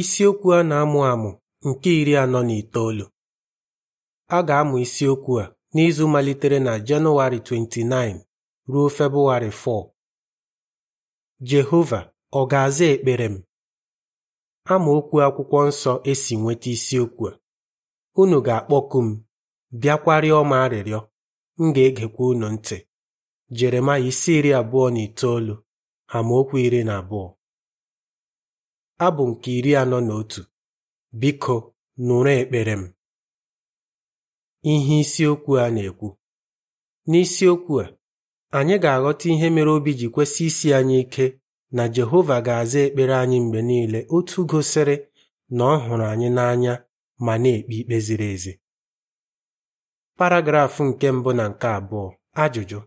Isiokwu a na-amụ amụ nke iri anọ na itoolu. A ga-amụ isiokwu a n'izu malitere na Jenụwarị 29 ruo Febụwarị 4. Jehova ọ ga-aza ekpere m? okwu Akwụkwọ Nsọ esi nweta isiokwu a. Unu ga-akpọku m, bịakwarịọ m arịrịọ, m ga-egekwa unu ntị. Jeremaya isi iri abụọ na itoolu amaokwu iri na abụọ Abụ nke iri anọ na otu Biko nụrụ ekpere m ihe isiokwu a na-ekwu n'isiokwu a anyị ga-aghọta ihe mere obi ji kwesị isi anyị ike na Jehova ga-aza ekpere anyị mgbe niile otu gosiri na ọ hụrụ anyị n'anya ma na-ekpe ikpe ziri ezi Paragraf nke mbụ na nke abụọ ajụjụ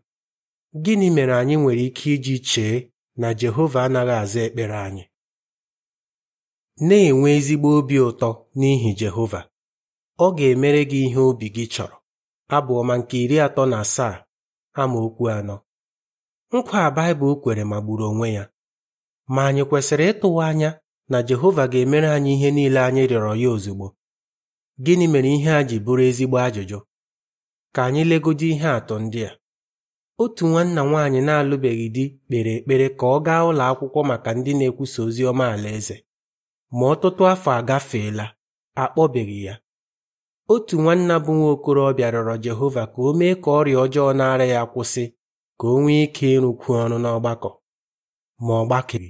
gịnị mere anyị nwere ike iji chee na Jehova anaghị aza ekpere anyị na-enwe ezigbo obi ụtọ n'ihi Jehova ọ ga-emere gị ihe obi gị chọrọ abụọma nke iri atọ na asaa ama okwu anọ nkwa a Baịbụl kwere magburu onwe ya ma anyị kwesịrị ịtụwa anya na Jehova ga-emere anyị ihe niile anyị rịọrọ ya ozugbo gịnị mere ihe a ji bụrụ ezigbo ajụjụ ka anyị legodo ihe atụ ndị a otu nwanna nwaanyị na-alụbeghị di kpere ekpere ka ọ gaa ụlọ akwụkwọ maka ndị na-ekwusa ozi ọma alaeze ma ọtụtụ afọ agafeela akpọbeghị ya otu nwanna bụ nwa okorobịa rịọrọ Jehova ka o mee ka ọrịa ọjọọ na-ara ya kwụsị ka o nwee ike ịrụkwu ọrụ n'ọgbakọ ma ọ gbakere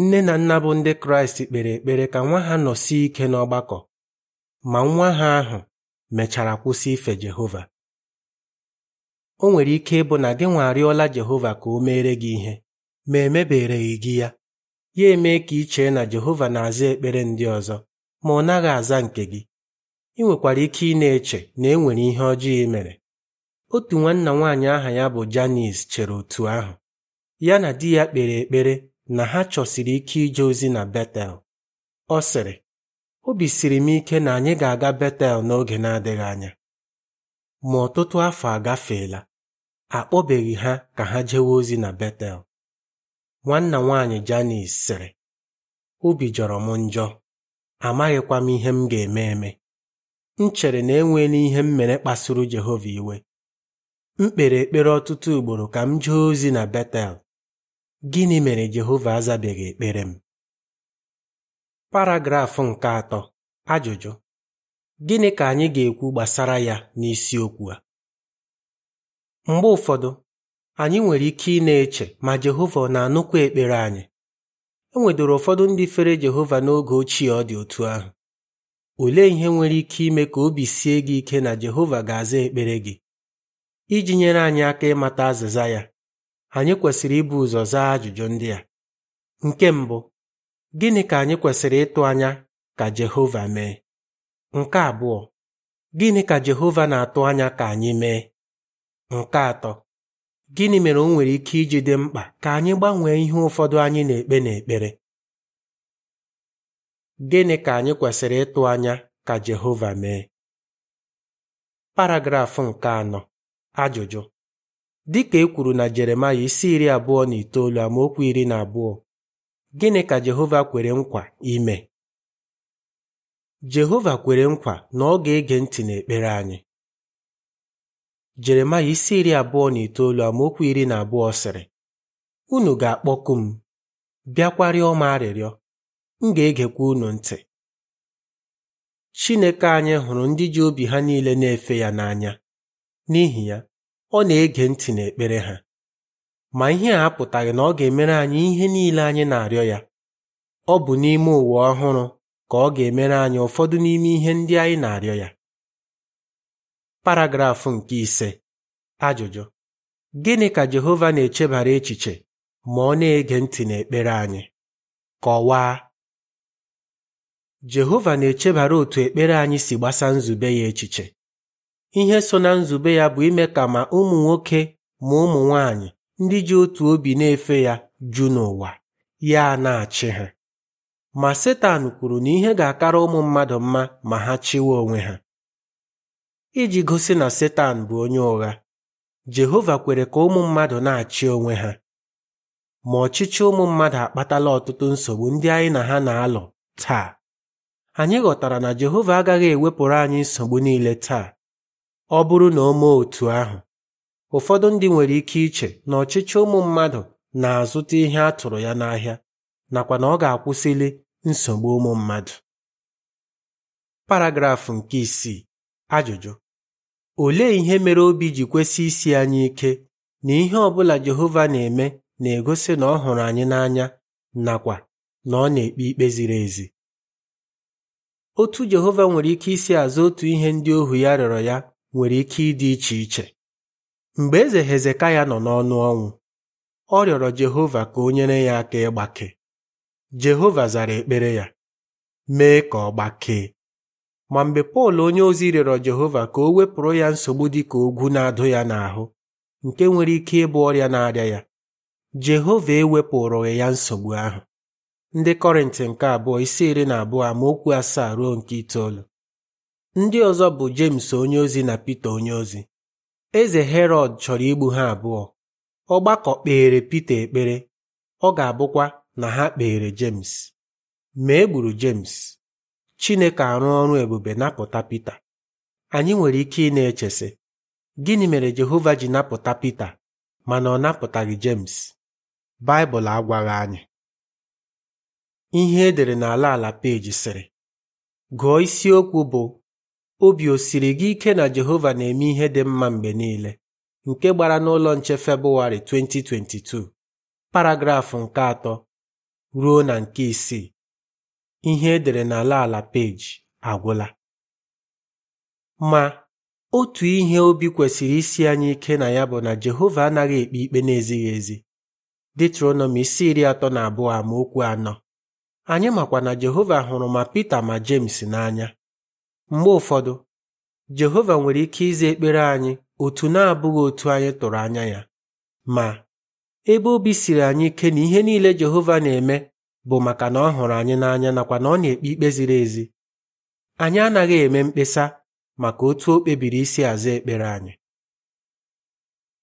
nne na nna bụ ndị Kraịst kpere ekpere ka nwa ha nọsie ike n'ọgbakọ ma nwa ha ahụ mechara kwụsị ife Jehova o nwere ike ịbụ na gị nwa arịọla Jehova ka o meere gị ihe ma emebereghị gị ya ya emee ka ị chee na Jehova na-aza ekpere ndị ọzọ ma ọ naghị aza nke gị ị nwekwara ike ị na-eche na e nwere ihe ọjọọ ị mere otu nwanna nwaanyị aha ya bụ Janice chere otu ahụ ya na di ya kpere ekpere na ha chọsiri ike ije ozi na Betel ọ sịrị obi siri m ike na anyị ga-aga Betel n'oge na-adịghị anya ma ọtụtụ afọ agafeela akpọbeghị ha ka ha jewe ozi na Betel nwanna nwaanyị janis sịrị obi jọrọ m njọ amaghịkwa m ihe m ga-eme eme m chere na enweela ihe m mere kpasuru Jehova iwe m kpere ekpere ọtụtụ ugboro ka m jee ozi na Betel gịnị mere Jehova azabeghị ekpere m Paragraf nke atọ ajụjụ gịnị ka anyị ga-ekwu gbasara ya n'isiokwu a mgbe ụfọdụ anyị nwere ike ị na-eche ma Jehova ọ na-anụkwa ekpere anyị e nwedoro ụfọdụ ndị fere Jehova n'oge ochie ọ dị otu ahụ olee ihe nwere ike ime ka obi sie gị ike na Jehova ga-aza ekpere gị iji nyere anyị aka ịmata azịza ya anyị kwesịrị ibu ụzọ zaa ajụjụ ndị a nke mbụ gịnị ka anyị kwesịrị ịtụ anya ka Jehova mee nke abụọ gịnị ka Jehova na-atụ anya ka anyị mee nke atọ Gịnị mere o nwere ike iji dị mkpa ka anyị gbanwee ihe ụfọdụ anyị na-ekpe na-ekpere? Gịnị ka anyị kwesịrị ịtụ anya ka Jehova mee? Paragraf nke anọ ajụjụ Dị ka e kwuru na Jeremaya isi iri abụọ na itoolu amaokwu iri na abụọ gịnị ka Jehova kwere nkwa ime? Jehova kwere nkwa na ọ ga-ege ntị n'ekpere anyị Jeremaya isi iri abụọ na itoolu amaokwu iri na abụọ sịrị unu ga-akpọku m bịakwarịọ m arịrịọ m ga-egekwa unu ntị Chineke anyị hụrụ ndị ji obi ha niile na-efe ya n'anya n'ihi ya ọ na-ege ntị n'ekpere ha ma ihe a apụtaghị na ọ ga-emere anyị ihe niile anyị na-arịọ ya ọ bụ n'ime ụwa ọhụrụ ka ọ ga-emere anyị ụfọdụ n'ime ihe ndị anyị na-arịọ ya paragrafụ nke ise ajụjụ gịnị ka Jehova na-echebara echiche ma ọ na-ege ntị n'ekpere anyị kọwaa Jehova na-echebara otu ekpere anyị si gbasa nzube ya echiche ihe so na nzube ya bụ ime ka ma ụmụ nwoke ma ụmụ nwanyị ndị ji otu obi na-efe ya ju n'ụwa ya na-achị ha ma Setan kwuru na ihe ga-akara ụmụ mmadụ mma ma ha chịwa onwe ha iji gosi na Setan bụ onye ụgha Jehova kwere ka ụmụ mmadụ na-achị onwe ha ma ọchịchị ụmụ mmadụ akpatala ọtụtụ nsogbu ndị anyị na ha na-alụ taa anyị ghọtara na Jehova agaghị ewepụrụ anyị nsogbu niile taa ọ bụrụ na o mee otu ahụ ụfọdụ ndị nwere ike iche na ọchịchị ụmụ mmadụ na-azụta ihe a tụrụ ya n'ahịa nakwa na ọ ga-akwụsịli nsogbu ụmụ mmadụ paragrafụ nke isii ajụjụ Olee ihe mere obi ji kwesị isi anyị ike na ihe ọbụla Jehova na-eme na-egosi na ọ hụrụ anyị n'anya nakwa na ọ na-ekpe ikpe ziri ezi? Otu Jehova nwere ike isi azụ otu ihe ndị ohu ya rịọrọ ya nwere ike ịdị iche iche. Mgbe eze Hezekaya nọ n'ọnụ ọnwụ, ọ rịọrọ Jehova ka o nyere ya aka ịgbake. Jehova zara ekpere ya, mee ka ọ gbakee. ma mgbe Pọl onyeozi rịọrọ Jehova ka o wepụrụ ya nsogbu dị ka ogwu na-adụ ya n'ahụ nke nwere ike ịbụ ọrịa na-arịa ya Jehova ewepụrụghị ya nsogbu ahụ ndị Kọrịntị nke abụọ isi iri na abụọ okwu asaa ruo nke itoolu ndị ọzọ bụ onye onyeozi na Pita onyeozi eze Herọd chọrọ igbu ha abụọ ọgbakọ kpeere Pita ekpere ọ ga-abụkwa na ha kpeere james ma e gburu Jems Chineke arụ ọrụ ebube napụta Pita anyị nwere ike ị na-echesị gịnị mere Jehova ji napụta Pita mana ọ napụtaghị James Baịbụl agwaghị anyị ihe edere n'ala ala peji sịrị gụọ isiokwu bụ obi osiri gị ike na Jehova na-eme ihe dị mma mgbe niile nke gbara n'ụlọ nche Febụwarị 2022 paragrafụ nke atọ ruo na nke isii ihe edere n'ala ala peji agwụla ma otu ihe obi kwesịrị isi anyị ike na ya bụ na Jehova anaghị ekpe ikpe na-ezighị ezi Detronomi isi iri atọ na abụọ a ma okwu anọ anyị makwa na Jehova hụrụ ma Pita ma James n'anya mgbe ụfọdụ Jehova nwere ike ịza ekpere anyị otu na-abụghị otu anyị tụrụ anya ya ma ebe obi siri anyị ike na ihe niile Jehova na-eme bụ maka na ọ hụrụ anyị n'anya nakwa na ọ na-ekpe ikpe ziri ezi anyị anaghị eme mkpesa maka otu o kpebiri isi aza ekpere anyị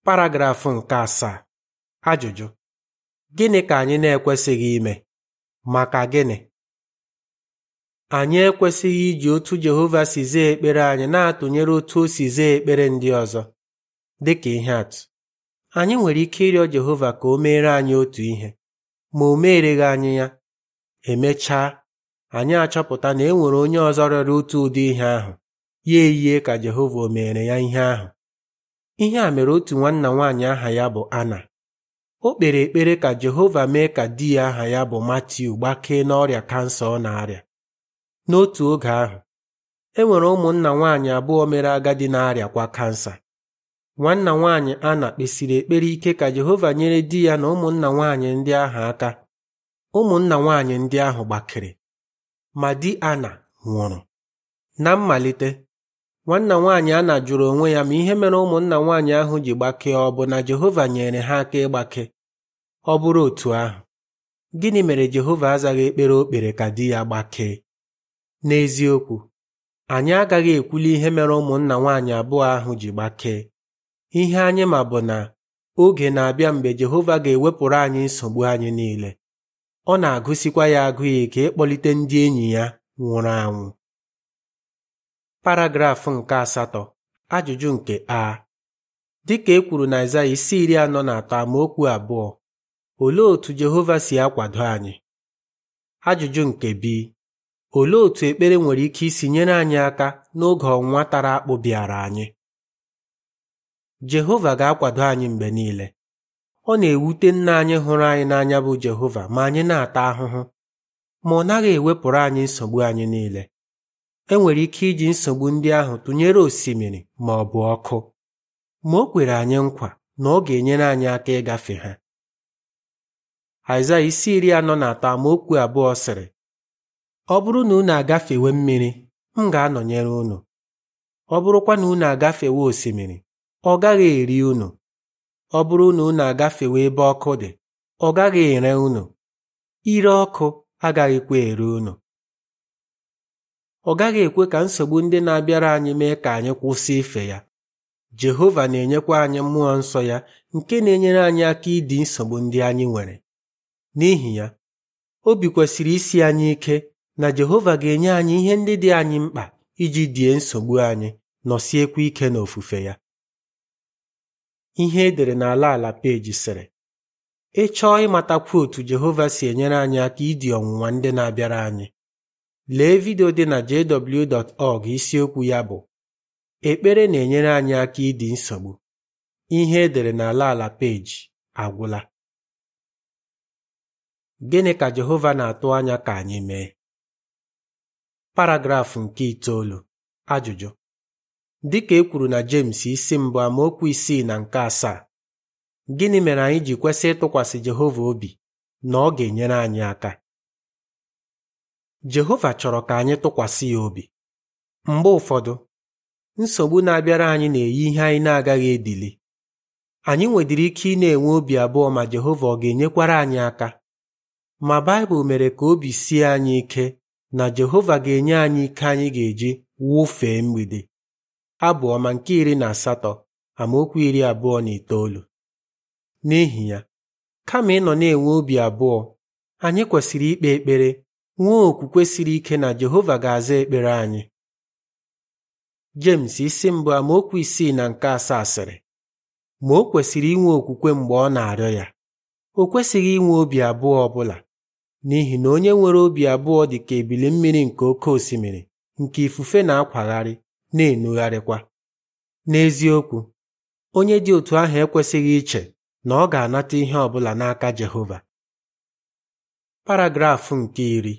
paragrafụ nke asaa ajụjụ gịnị ka anyị na-ekwesịghị ime maka gịnị anyị ekwesịghị iji otu Jehova si zaa ekpere anyị na-atụnyere otu o si zaa ekpere ndị ọzọ dịka ihe atụ anyị nwere ike ịrịọ Jehova ka o meere anyị otu ihe ma o meereghị anyị ya emechaa anyị achọpụta na e nwere onye ọzọ rịọrọ otu ụdị ihe ahụ ya eyie ka Jehova o meere ya ihe ahụ ihe a mere otu nwanna nwaanyị aha ya bụ Ana o kpere ekpere ka Jehova mee ka di ya aha ya bụ Matiu gbakee n'ọrịa kansa ọ na-arịa n'otu oge ahụ e nwere ụmụnna nwaanyị abụọ mere agadi na-arịakwa kansa nwanna nwaanyị Ana kpesiri ekpere ike ka Jehova nyere di ya na ụmụnna nwaanyị ndị ahụ aka ụmụnna nwaanyị ndị ahụ gbakere ma di Ana nwụrụ na mmalite nwanna nwaanyị Ana jụrụ onwe ya ma ihe mere ụmụnna nwaanyị ahụ ji gbakee ọ bụ na Jehova nyere ha aka ịgbake ọ bụrụ otu ahụ gịnị mere Jehova azaghị ekpere o kpere ka di ya gbakee n'eziokwu anyị agaghị ekwuli ihe mere ụmụnna nwaanyị abụọ ahụ ji gbakee Ihe anyị ma bụ na oge na-abịa mgbe Jehova ga-ewepụrụ anyị nsogbu anyị niile. Ọ na-agụsikwa ya agụ ike ịkpọlite ndị enyi ya nwụrụ anwụ. Paragraf nke asatọ ajụjụ nke a dịka e kwuru na Aịzaya isi iri anọ na atọ amaokwu abụọ olee otú Jehova si akwado anyị ajụjụ nke b olee otú ekpere nwere ike isi nyere anyị aka n'oge ọnwa tara akpụ bịara anyị Jehova ga-akwado anyị mgbe niile ọ na-ewute nna anyị hụrụ anyị n'anya bụ Jehova ma anyị na-ata ahụhụ ma ọ naghị ewepụrụ anyị nsogbu anyị niile enwere ike iji nsogbu ndị ahụ tụnyere osimiri ma ọ bụ ọkụ ma o kwere anyị nkwa na ọ ga-enyere anyị aka ịgafe ha Aịzaya isi iri anọ na atọ amaokwu abụọ sịrị ọ bụrụ na unu agafewe mmiri m ga-anọnyere unu ọ bụrụkwa na unu agafewe osimiri ọ gaghị eri unu ọ bụrụ na unu agafewe ebe ọkụ dị ọ gaghị ere unu ire ọkụ agaghịkwa ere unu ọ gaghị ekwe ka nsogbu ndị na-abịara anyị mee ka anyị kwụsị ife ya Jehova na-enyekwa anyị mmụọ nsọ ya nke na-enyere anyị aka ịdị nsogbu ndị anyị nwere n'ihi ya obi kwesịrị isi anyị ike na Jehova ga-enye anyị ihe ndị dị anyị mkpa iji die nsogbu anyị nọsiekwa ike n'ofufe ya ihe edere n'ala ala peji sịrị ị chọọ ịmata otu Jehova si enyere anyị aka idi ọnwụnwa ndị na-abịara anyị lee vidio dị na jw.org isiokwu ya bụ ekpere na-enyere anyị aka ịdị nsogbu ihe edere n'ala ala peji agwụla gịnị ka Jehova na-atụ anya ka anyị mee paragrafụ nke itoolu ajụjụ Dịka e kwuru na Jems isi mbụ amaokwu isii na nke asaa gịnị mere anyị ji kwesị ịtụkwasị Jehova obi na ọ ga-enyere anyị aka Jehova chọrọ ka anyị tụkwasị ya obi mgbe ụfọdụ nsogbu na-abịara anyị na-eyi ihe anyị na-agaghị ebili anyị nwedịrị ike ị na-enwe obi abụọ ma Jehova ọ ga-enyekwara anyị aka ma Baịbụl mere ka obi sie anyị ike na Jehova ga-enye anyị ike anyị ga-eji wụfee mgbede Abụ Ọma nke iri na asatọ amaokwu iri abụọ na itoolu n'ihi ya kama ịnọ na-enwe obi abụọ anyị kwesịrị ikpe ekpere nwee okwukwe siri ike na Jehova ga-aza ekpere anyị James isi mbụ amaokwu isii na nke asaa sịrị ma o kwesịrị inwe okwukwe mgbe ọ na-arịọ ya o kwesịghị inwe obi abụọ ọbụla n'ihi na onye nwere obi abụọ dị ka ebili mmiri nke oke osimiri nke ifufe na-akwagharị na-enugharịkwa. N'eziokwu, onye dị otu ahụ ekwesịghị iche na ọ ga-anata ihe ọ bụla n'aka Jehova. Paragraf nke iri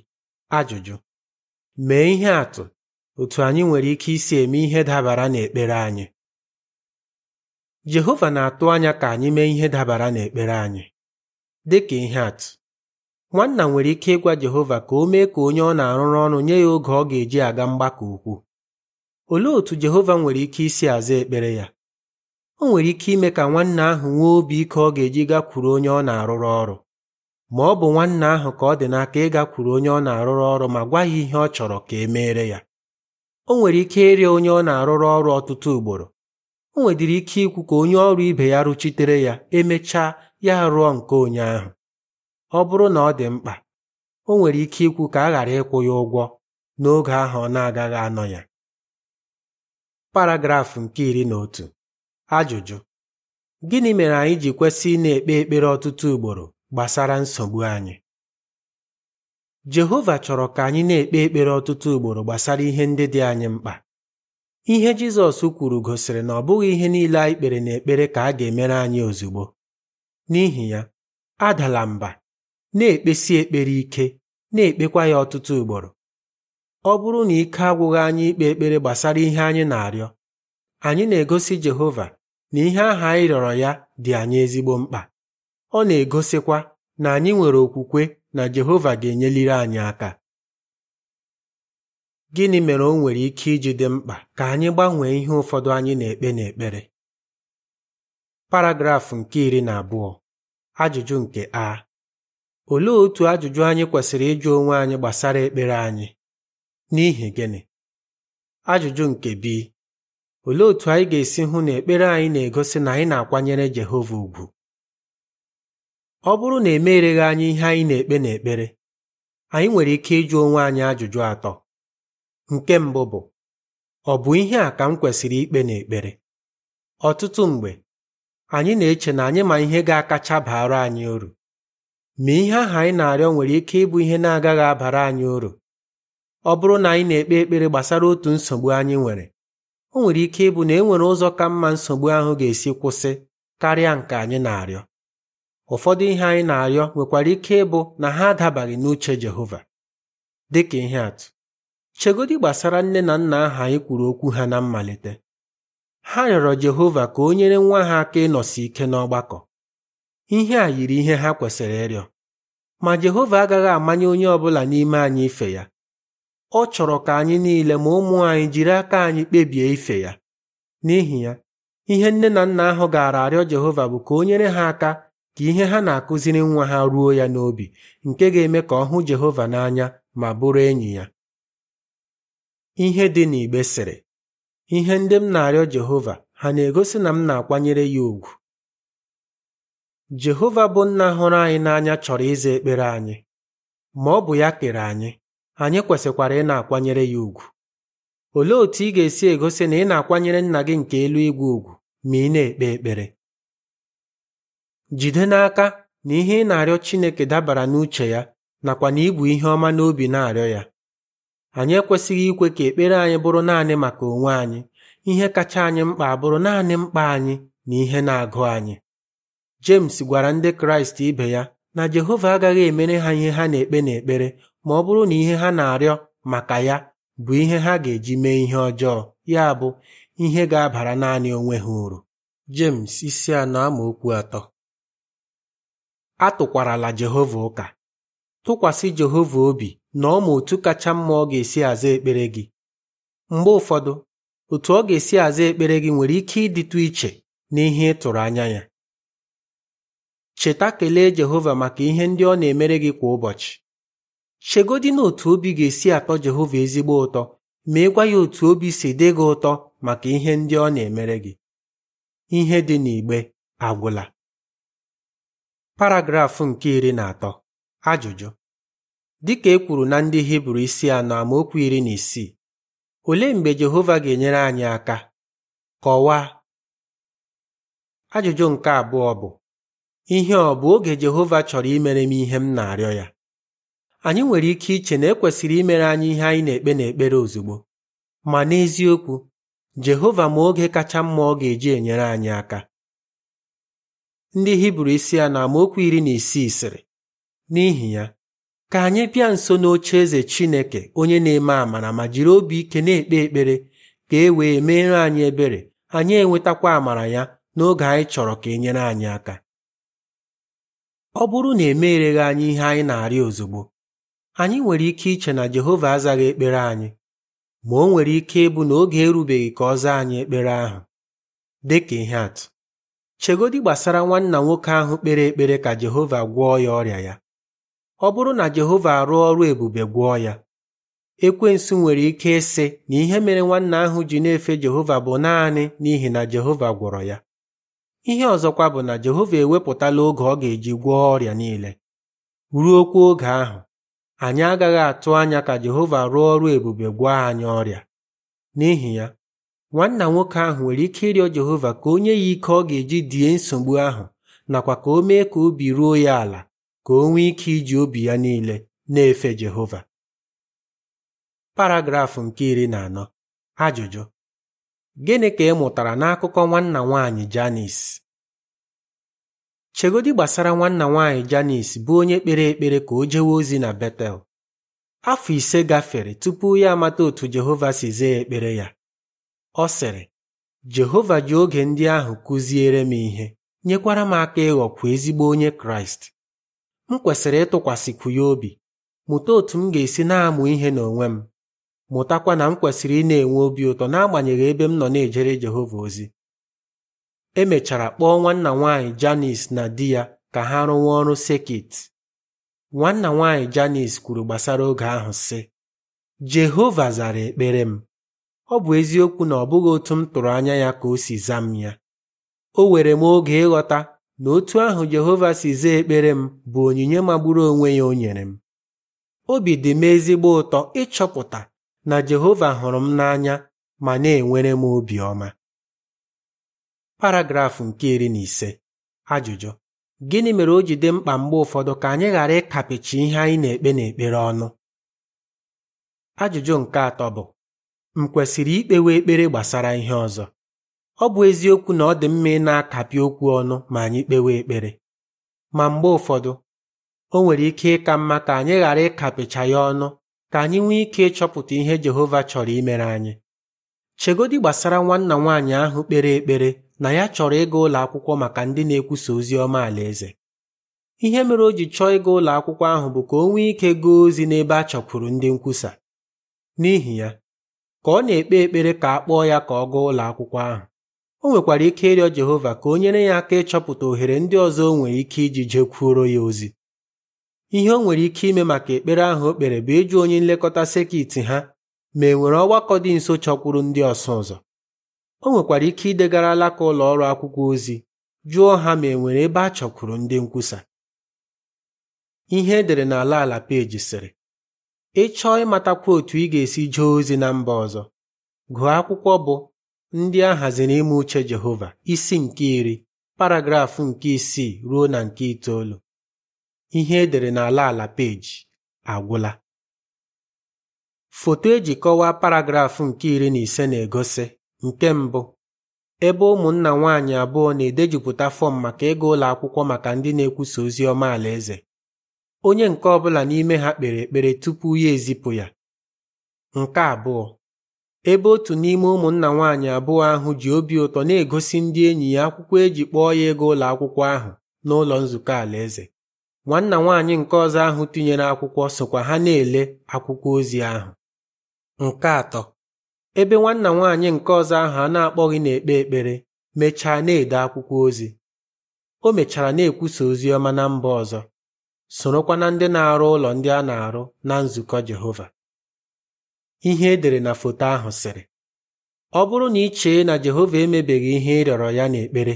ajụjụ mee ihe atụ otu anyị nwere ike isi eme ihe dabara n'ekpere anyị Jehova na-atụ anya ka anyị mee ihe dabara n'ekpere anyị dị ka ihe atụ nwanna nwere ike ịgwa Jehova ka o mee ka onye ọ na-arụrụ ọrụ nye ya oge ọ ga-eji aga mgbakọ ukwu olee otú Jehova nwere ike isi aza ekpere ya o nwere ike ime ka nwanna ahụ nwee obi ike ọ ga-eji gakwuru onye ọ na-arụrụ ọrụ ma ọ bụ nwanna ahụ ka ọ dị n'aka ịgakwuru onye ọ na-arụrụ ọrụ ma gwa ya ihe ọ chọrọ ka e meere ya o nwere ike ịrịa onye ọ na-arụrụ ọrụ ọtụtụ ugboro o nwedịrị ike ikwu ka onye ọrụ ibe ya rụchitere ya emechaa ya rụọ nke onye ahụ ọ bụrụ na ọ dị mkpa o nwere ike ikwu ka a ghara ịkwụ ya ụgwọ n'oge ahụ ọ na-agaghị anọ ya paragrafụ nke iri na otu ajụjụ gịnị mere anyị ji kwesị na-ekpe ekpere ọtụtụ ugboro gbasara nsogbu anyị Jehova chọrọ ka anyị na-ekpe ekpere ọtụtụ ugboro gbasara ihe ndị dị anyị mkpa ihe Jizọs kwuru gosiri na ọ bụghị ihe niile anyị kpere na ekpere ka a ga-emere anyị ozugbo n'ihi ya adala mba na-ekpesi ekpere ike na-ekpekwa ya ọtụtụ ugboro ọ bụrụ na ike agwụghị anyị ikpe ekpere gbasara ihe anyị na-arịọ anyị na-egosi Jehova na ihe ahụ anyị rịọrọ ya dị anyị ezigbo mkpa ọ na-egosikwa na anyị nwere okwukwe na Jehova ga-enyeliri anyị aka gịnị mere o nwere ike iji dị mkpa ka anyị gbanwee ihe ụfọdụ anyị na-ekpe n'ekpere paragrafụ nke iri na abụọ ajụjụ nke a olee otu ajụjụ anyị kwesịrị ịjụ onwe anyị gbasara ekpere anyị N'ihi gịnị? Ajụjụ nke bi olee otú anyị ga-esi hụ na ekpere anyị na-egosi na anyị na-akwanyere Jehova ugwu? Ọ bụrụ na emereghị anyị ihe anyị na-ekpe n'ekpere, anyị nwere ike ịjụ onwe anyị ajụjụ atọ. Nke mbụ bụ ọ bụ ihe a ka m kwesịrị ikpe n'ekpere? Ọtụtụ mgbe anyị na-eche na anyị ma ihe ga-akacha baara anyị uru ma ihe ahụ anyị na-arịọ nwere ike ịbụ ihe na-agaghị abara anyị uru ọ bụrụ na anyị na-ekpe ekpere gbasara otu nsogbu anyị nwere o nwere ike ịbụ na e nwere ụzọ ka mma nsogbu ahụ ga-esi kwụsị karịa nke anyị na-arịọ ụfọdụ ihe anyị na-arịọ nwekwara ike ịbụ na ha adabaghị n'uche Jehova dị ka ihe atụ chegodi gbasara nne na nna ahụ anyị kwuru okwu ha na mmalite ha rịọrọ Jehova ka o nyere nwa ha aka ịnọsi ike n'ọgbakọ ihe a yiri ihe ha kwesịrị ịrịọ ma Jehova agaghị amanye onye ọ bụla n'ime anyị ife ya ọ chọrọ ka anyị niile ma ụmụ anyị jiri aka anyị kpebie ife ya n'ihi ya ihe nne na nna ahụ gaara arịọ Jehova bụ ka o nyere ha aka ka ihe ha na-akụziri nwa ha ruo ya n'obi nke ga-eme ka ọ hụ Jehova n'anya ma bụrụ enyi ya ihe dị n'igbe sịrị ihe ndị m na-arịọ Jehova ha na-egosi na m na-akwanyere ya ùgwù Jehova bụ nna hụrụ anyị n'anya chọrọ ịza ekpere anyị ma ọ bụ ya kere anyị anyị kwesịkwara ị na-akwanyere ya ùgwù olee otú ị ga-esi egosi na ị na-akwanyere nna gị nke elu igwe ùgwù ma ị na-ekpe ekpere jide n'aka na ihe ị na-arịọ Chineke dabara n'uche ya nakwa na ibu ihe ọma n'obi na-arịọ ya anyị ekwesịghị ikwe ka ekpere anyị bụrụ naanị maka onwe anyị ihe kacha anyị mkpa abụrụ naanị mkpa anyị na ihe na-agụ anyị James gwara ndị Kraịst ibe ya na Jehova agaghị emere ha ihe ha na-ekpe n'ekpere ma ọ bụrụ na ihe ha na-arịọ maka ya bụ ihe ha ga-eji mee ihe ọjọọ ya bụ ihe ga-abara naanị onwe ha uru James isi anọ okwu atọ atụkwarala Jehova ụka tụkwasị Jehova obi na ọ ma otu kacha mma ọ ga-esi aza ekpere gị mgbe ụfọdụ otu ọ ga-esi aza ekpere gị nwere ike ịdịtụ iche n'ihe ị tụrụ anya ya cheta kelee Jehova maka ihe ndị ọ na-emere gị kwa ụbọchị chegodi na otu obi ga-esi atọ Jehova ezigbo ụtọ ị gwa ya otu obi si dị gị ụtọ maka ihe ndị ọ na-emere gị ihe dị n'igbe agwụla paragrafụ nke iri na atọ ajụjụ Dị ka e kwuru na ndị Hibru isi anọ amaokwu iri na isii olee mgbe Jehova ga-enyere anyị aka kọwaa ajụjụ nke abụọ bụ ihe ọ bụ oge Jehova chọrọ imere m ihe m na-arịọ ya anyị nwere ike iche na ekwesịrị imere anyị ihe anyị na-ekpe n'ekpere ozugbo ma n'eziokwu Jehova ma oge kacha mma ọ ga-eji enyere anyị aka ndị Hibru isi a na amaokwu iri na isii sịrị n'ihi ya ka anyị bịa nso n'oche eze Chineke onye na-eme amara ma jiri obi ike na-ekpe ekpere ka e wee meere anyị ebere anyị enwetakwa amara ya n'oge anyị chọrọ ka e nyere anyị aka ọ bụrụ na emereghị anyị ihe anyị na arịa ozugbo anyị nwere ike iche na Jehova azaghị ekpere anyị ma o nwere ike ịbụ na oge erubeghị ka ọ zaa anyị ekpere ahụ dị ka ihe atụ chegodi gbasara nwanna nwoke ahụ kpere ekpere ka Jehova gwọọ ya ọrịa ya ọ bụrụ na Jehova arụ ọrụ ebube gwọọ ya ekwensu nwere ike ịsị na ihe mere nwanna ahụ ji na-efe Jehova bụ naanị n'ihi na Jehova gwọrọ ya ihe ọzọkwa bụ na Jehova ewepụtala oge ọ ga-eji gwọọ ọrịa niile ruokwa oge ahụ anyị agaghị atụ anya ka Jehova rụọ ọrụ ebube gwa anyị ọrịa n'ihi ya nwanna nwoke ahụ nwere ike ịrịọ Jehova ka o ya ike ọ ga-eji die nsogbu ahụ nakwa ka o mee ka obi ruo ya ala ka o nwee ike iji obi ya niile na-efe Jehova Paragraf nke iri na anọ ajụjụ gịnị ka ị mụtara n'akụkọ nwanna nwanyị Janis chegodi gbasara nwanna nwaanyị janis bụ onye kpere ekpere ka o jewe ozi na betel afọ ise gafere tupu ya amata otu jehova si zee ekpere ya ọ sịrị jehova ji oge ndị ahụ kụziere m ihe nyekwara m aka ịghọkwa ezigbo onye kraịst m kwesịrị ịtụkwasịkwu ya obi mụta otu m ga-esi na-amụ ihe n'onwe m mụtakwa na m kwesịrị ị na-enwe obi ụtọ n'agbanyeghị ebe m nọ na-ejere jehova ozi emechara kpọọ nwanna nwanyị Janis na di ya ka ha rụwa ọrụ sekit nwanna nwanyị Janis kwuru gbasara oge ahụ sị Jehova zara ekpere m ọ bụ eziokwu na ọ bụghị otu m tụrụ anya ya ka o si zaa m ya o were m oge ịghọta na otu ahụ Jehova si zaa ekpere m bụ onyinye magburu onwe ya o nyere m obi dị m ezigbo ụtọ ịchọpụta na Jehova hụrụ m n'anya ma na-enwere m obiọma paragrafụ nke iri na ise ajụjụ gịnị mere o ji dị mkpa mgbe ụfọdụ ka anyị ghara ịkapịchi ihe anyị na-ekpe n'ekpere ọnụ ajụjụ nke atọ bụ m kwesịrị ikpewe ekpere gbasara ihe ọzọ ọ bụ eziokwu na ọ dị mma ị na-akapị okwu ọnụ ma anyị kpewe ekpere ma mgbe ụfọdụ o nwere ike ịka mma ka anyị ghara ịkapịcha ya ọnụ ka anyị nwee ike ịchọpụta ihe Jehova chọrọ imere anyị chegodi gbasara nwanna nwaanyị ahụ kpere ekpere na ya chọrọ ịga ụlọ akwụkwọ maka ndị na-ekwusa ozi ọma alaeze ihe mere o ji chọọ ịga ụlọ akwụkwọ ahụ bụ ka o nwee ike gaa ozi n'ebe a chọkwuru ndị nkwusa n'ihi ya ka ọ na-ekpe ekpere ka a kpọọ ya ka ọ gaa ụlọ akwụkwọ ahụ o nwekwara ike ịrịọ Jehova ka o nyere ya aka ịchọpụta ohere ndị ọzọ o nwere ike iji jekwuoro ya ozi ihe o nwere ike ime maka ekpere ahụ o kpere bụ ịjụ onye nlekọta sekit ha ma e nwere ọgbakọ dị nso chọkwuru ndị ọsụ ụzọ o nwekwara ike idegara alaka ụlọ ọrụ akwụkwọ ozi jụọ ha ma e nwere ebe a chọkwuru ndị nkwusa ihe edere n'ala ala peji sịrị ị chọọ ịmatakwa otu ị ga-esi jee ozi na mba ọzọ gụọ akwụkwọ bụ ndị a haziri ime uche Jehova isi nke iri paragrafụ nke isii ruo na nke itoolu ihe edere n'ala ala peji agwụla foto eji kọwaa paragrafụ nke iri na ise na-egosi Nke mbụ ebe ụmụnna nwaanyị abụọ na-edejupụta fọm maka ịga ụlọ akwụkwọ maka ndị na-ekwusa ozi ọma alaeze onye nke ọbụla n'ime ha kpere ekpere tupu ya ezipụ ya nke abụọ ebe otu n'ime ụmụnna nwaanyị abụọ ahụ ji obi ụtọ na-egosi ndị enyi ya akwụkwọ eji kpọọ ya ego ụlọ akwụkwọ ahụ n'ụlọ nzukọ alaeze nwanna nwaanyị nke ọzọ ahụ tinyere akwụkwọ sokwa ha na-ele akwụkwọ ozi ahụ nke atọ ebe nwanna nwaanyị nke ọzọ ahụ a na-akpọghị na-ekpe ekpere mechaa na-ede akwụkwọ ozi o mechara na-ekwusa ozi ọma na mba ọzọ sorokwa na ndị na-arụ ụlọ ndị a na-arụ na nzukọ Jehova ihe edere na foto ahụ sịrị ọ bụrụ na ị chee na Jehova emebeghị ihe ịrịọrọ ya n'ekpere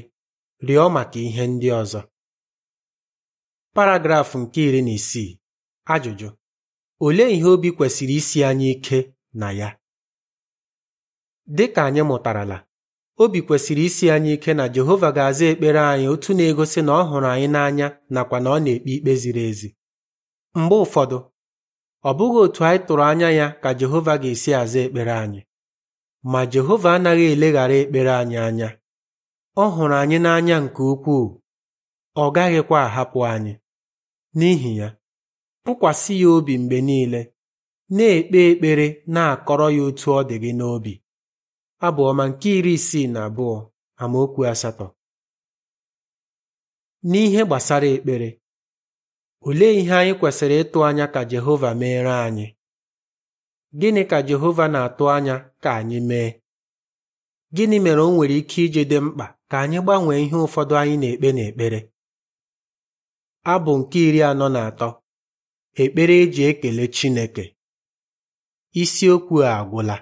rịọ maka ihe ndị ọzọ paragrafụ nke iri na isii ajụjụ olee ihe obi kwesịrị isi anyị ike na ya Dị ka anyị mụtarala, obi kwesịrị isi anyị ike na Jehova ga-aza ekpere anyị otu na-egosi na ọ hụrụ anyị n'anya nakwa na ọ na-ekpe ikpe ziri ezi. Mgbe ụfọdụ, ọ bụghị otu anyị tụrụ anya ya ka Jehova ga-esi aza ekpere anyị, ma Jehova anaghị eleghara ekpere anyị anya. Ọ hụrụ anyị n'anya nke ukwuu, ọ gaghịkwa ahapụ anyị. N'ihi ya, tụkwasị ya obi mgbe niile, na-ekpe ekpere na-akọrọ ya otu ọ dị gị n'obi. abụọma ọma nke iri isii na abụọ amaokwu asatọ n'ihe gbasara ekpere ole ihe anyị kwesịrị ịtụ anya ka Jehova meere anyị gịnị ka Jehova na-atụ anya ka anyị mee gịnị mere o nwere ike iji dị mkpa ka anyị gbanwee ihe ụfọdụ anyị na-ekpe n'ekpere abụ nke iri anọ na atọ ekpere eji ekele Chineke isiokwu a agwụla